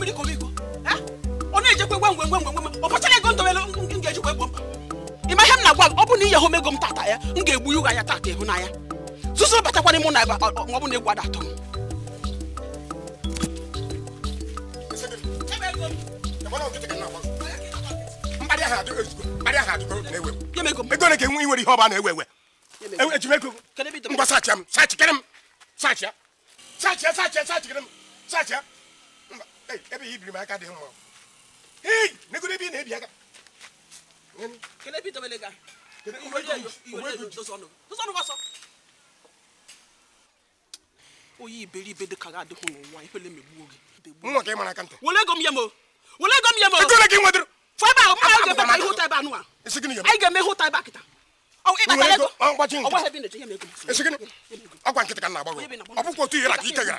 mmiri ka omiko ọ na-ejekwa gwa ngwe ngwe ngwe ọ ego m ga na-agwa ọ bụ na home ego m tata ya m ga-egbu ihu anya tata n'anya batakwana m na ebe ọ bụ na egwu ada atọ m ego enwe ihe ọba na-ewe ewe ejimego m m ya sachi ebe ya ibiri m aka dị mma hei negoro ebe ị na-ebi aka onye iberibe dị ka ga adịghị n'ụwa ikwele megbuo gị nwa ka ị mara aka ntị were ego m ya mo ego m ya mo ihe ụta ebe anụ a anyị ga-eme ihe ụta ebe ka m na ọ bụkwa ike gara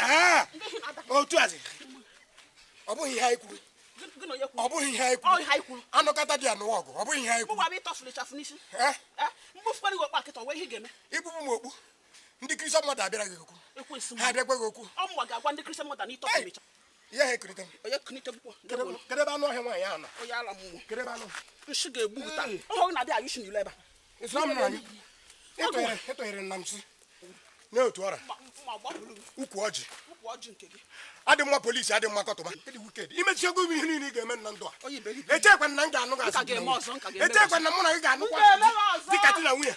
Ah! otu a, ọ bụghị ihe anyị kwuru ọ bụghị ihe anyị kwuru anụkọta dị anụwa ọgụ ọ bụghị ihe anyị kwuru eh? Eh? m okpu ndị kristian mmadụ abịara gị okwu ha abịakwa gị okwu ihe ha ekerịta kedebe anụ ọhịa nwaanyị ahụ nọ ịtọnyere nna m si nye otu ọra ukwu ọjị adị mma polisi adị mma kọtụba imechiego m ihe niile ị ga-eme nna ndụ a echekwa na m ga-anụ echekwa na mụ na gị ga-anụkwa dịka di na nwunye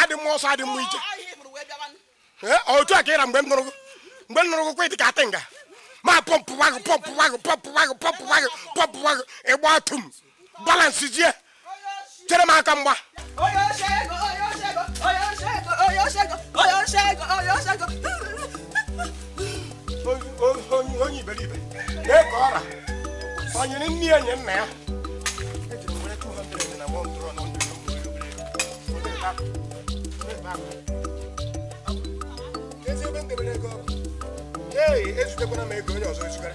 adị mma ọsọ adị mma ije otu a ka ịra mgbe m nụrụ mgbe nụrụ dị ka nga ma pọmpụwa gị pọmpụwa gị pọmpụwa ịgba tụ balansị aka mgba Lee ka ọra nne nye nna ya eji onye ọzọ ezugara